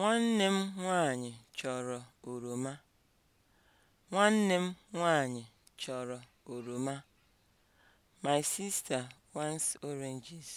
Nwanne m nwanyị chọrọ oroma. Nwanne oroma. My sister wants oranges.